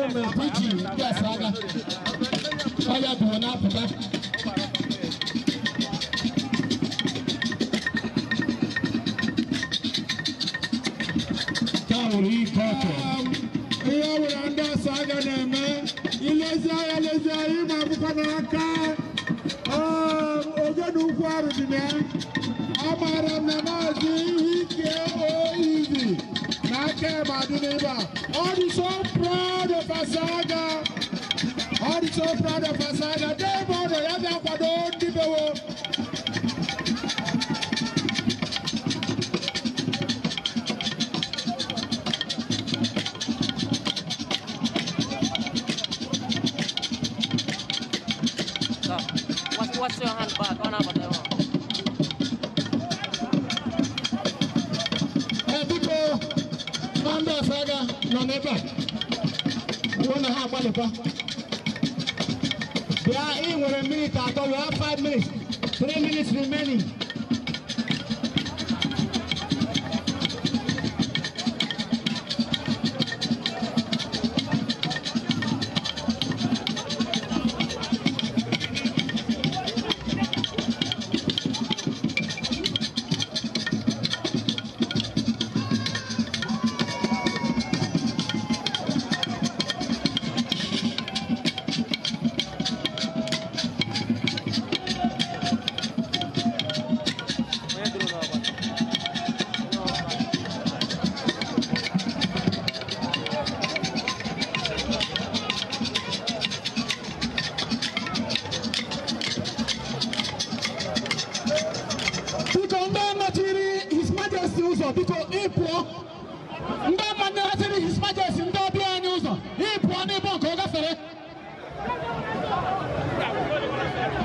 Wannan mai kuki ya saga. Baya da wani fita. Tauri Koto. Iya wuri da saga na Akem Aduneba. God is so proud of Asaga. God is so proud of Asaga. They want to have that for all people. What's your handbag? One over there. nọ n'ebe a na ha agbalịkwa bịa ị nwere minit atọ wee 5 minutes 3 minutes remaining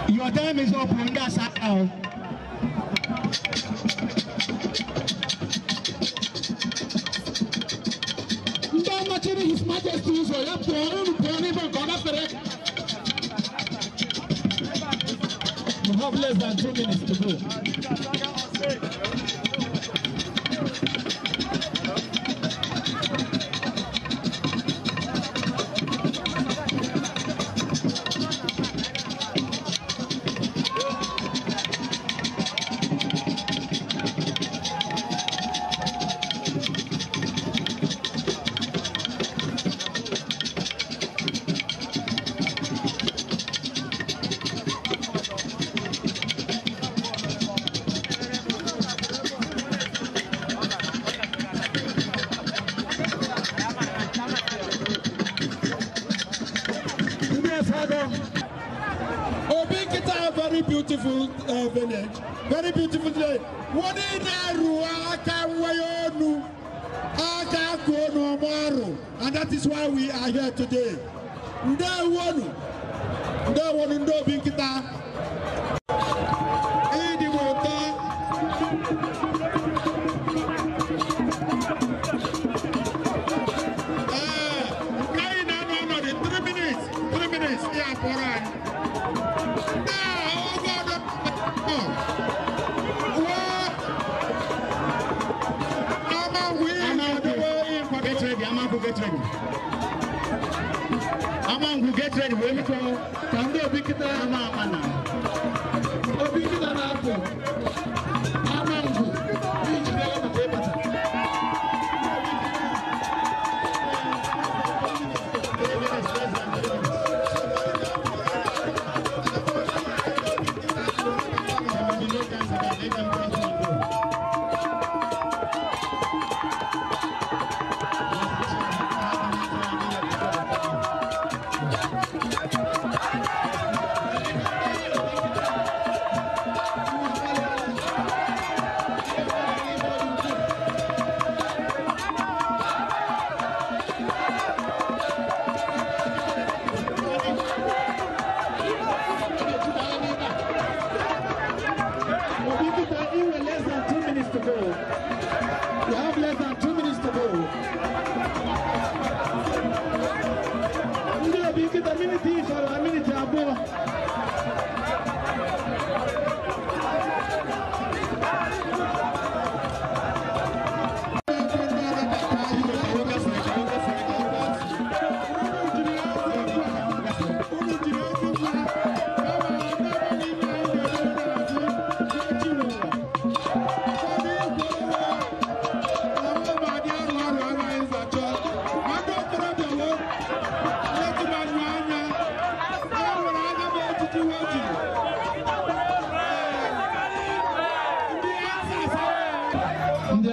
Your time is up, Wonga Sakao. Don't much in His Majesty, so you're pouring, pouring, for God after it. You have less than two minutes to go. beautiful uh, village, very beautiful day. Wọ́n ní Nàírù aka wẹ́yọ́nu aka kóonu ọmọ ọrùn and that is why we are here today. Ndewonu Ndewonu Ndobi Nkita. get ready. Amangu get ready. Wemi ko tando obi kita ama amana. Obi kita na apo.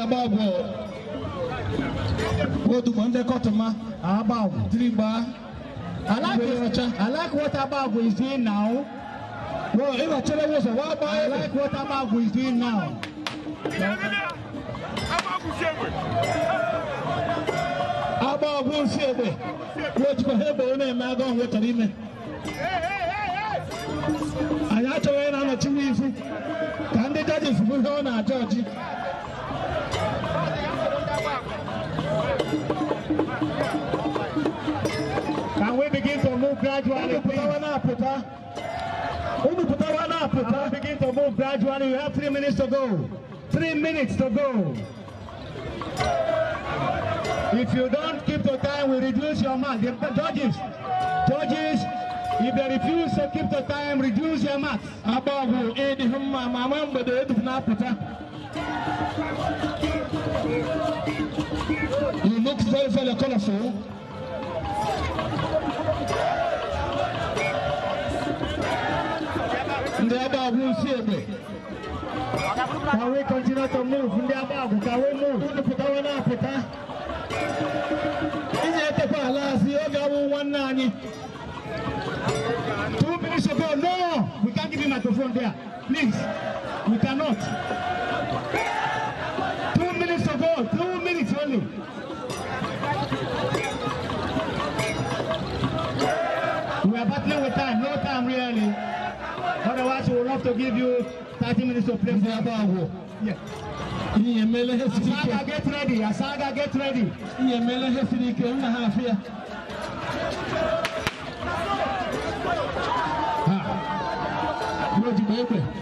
Agbagwo Odugbo Ndekọtuma Agbagwo Dirigba I like what I like what Agbagwo is doing now. Well, if I tell you what, what about I like what Agbagwo is doing now. Agbagwo ha ebe na-eme agụ ime. Anyị achọghị na-anọchi n'izu ka ndị jajis bụ ihe ọ na-achọ Can we begin to move gradually, please? we begin to move gradually? You have three minutes to go. Three minutes to go. If you don't keep the time, we reduce your marks. The judges, judges, if they refuse to keep the time, reduce your marks. You look very, very colorful. Ndị agba agwụ si egbe. we continue to move. Ndị agba we move. Ndị pụtawa na-apụta. Is it a palace? oge awụ nwanne anyị. Two minutes ago, no! We can't give him microphone there. Please, we cannot. give you 30 minutes to play football. Yeah. Iyemele Hesirike. Asaga get ready. Asaga get ready. ha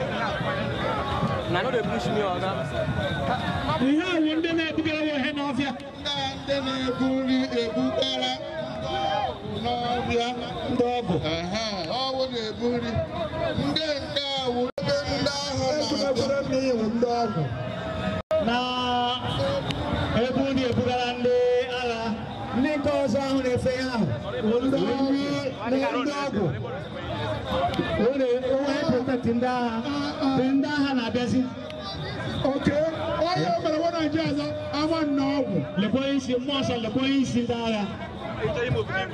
na no dey push me oga. ihe ahụ ndị na-ebugara ha ihe n'ọfịa. ndị na-ebu nri ebugara n'ọbịa ndị ọbụ bụ. ọwụ na-ebu nri ndị nke ahụ ndị ahụ na-abịa. ndị ahụ. o de o ye pɔtɛ tinda tinda hana dɛsi. ok o ye mɛrɛ wɔ na jɛ sɔ an ma nɔ wò. lɛbɔ yi si mɔsɔn lɛbɔ yi si da la.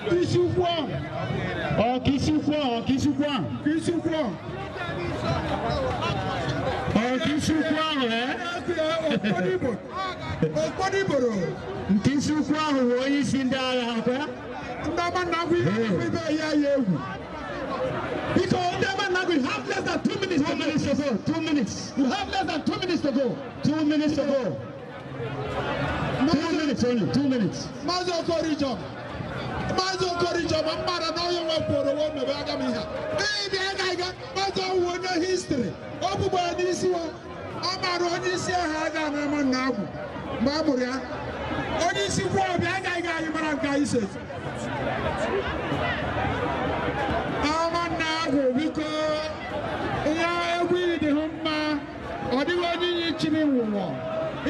kisi fɔ. ɔ kisi fɔ ɔ kisi fɔ. kisi fɔ. ɔ kisi fɔ rɛ. o kɔni bolo. kisi fɔ wo yi si da la o kɛ. Baba Nagui everywhere here Yehu. Because Odeba Nagui, you have less than two minutes two to minutes go. to go. Two minutes. You have less than two minutes to go. Two minutes to go. Two minutes only. Two minutes. Mazo Korijom. Mazo Korijom. Amara na oyo wa poro wo mebe aga mi ha. Ee bi aga aga. Mazo wo no history. Obubo ni isi wa. Amara onye isi aha aga na ma na agwu. Ma ya. onye isi kwuo ọbịa agaghị anyị mara nke anyị se ọmanna ahụ biko ihe egwu ịdịhụ mma ọ dịghị onye iyi chiri nwụwọ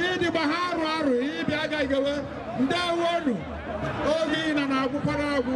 ịdịgba ha arụ arụ ịbịa agaghị ahụ ndewonu oge ị na na-agwụkwara agwụ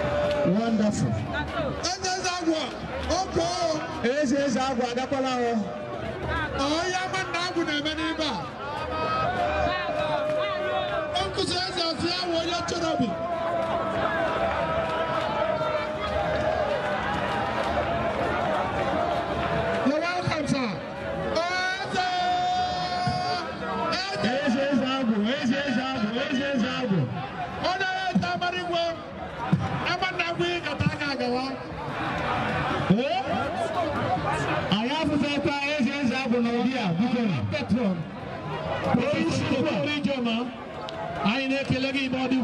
wonderful Eze eze agwọ oke o eze eze agwọ agakwala o onye ama na agwụ na-eme n'ebe a o nkụzi eze ọsụ ya wụ onye chọrọ obi Ayine ke lagi body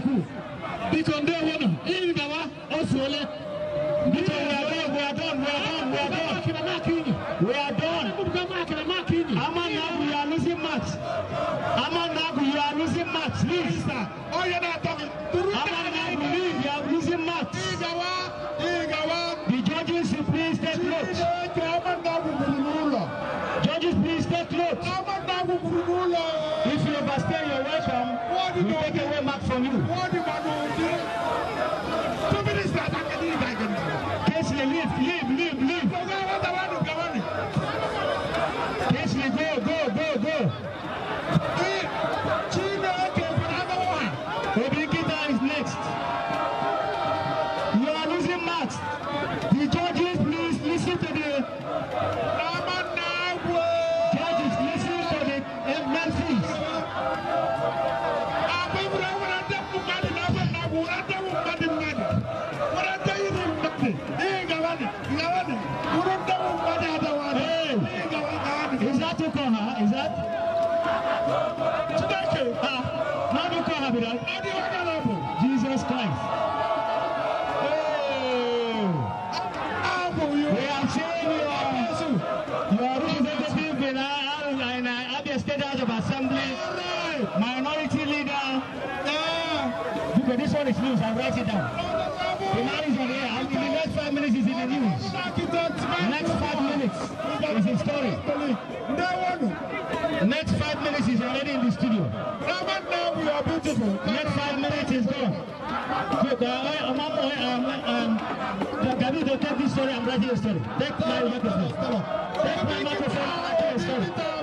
understand your welcome, we take away marks from you. are showing your, this one is news, i write it down. The next five minutes is in the news. Next five minutes is his story. Next five minutes is already in the studio. Now we are beautiful. Next five minutes is gone. Uh, uh, um, uh, um, take this story and Take my microphone.